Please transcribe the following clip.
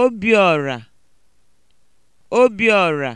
Obiọra Obiọra